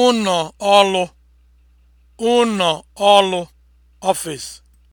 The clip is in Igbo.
ụnọ ọlụ (ụnọ ọlụ) ọfịs.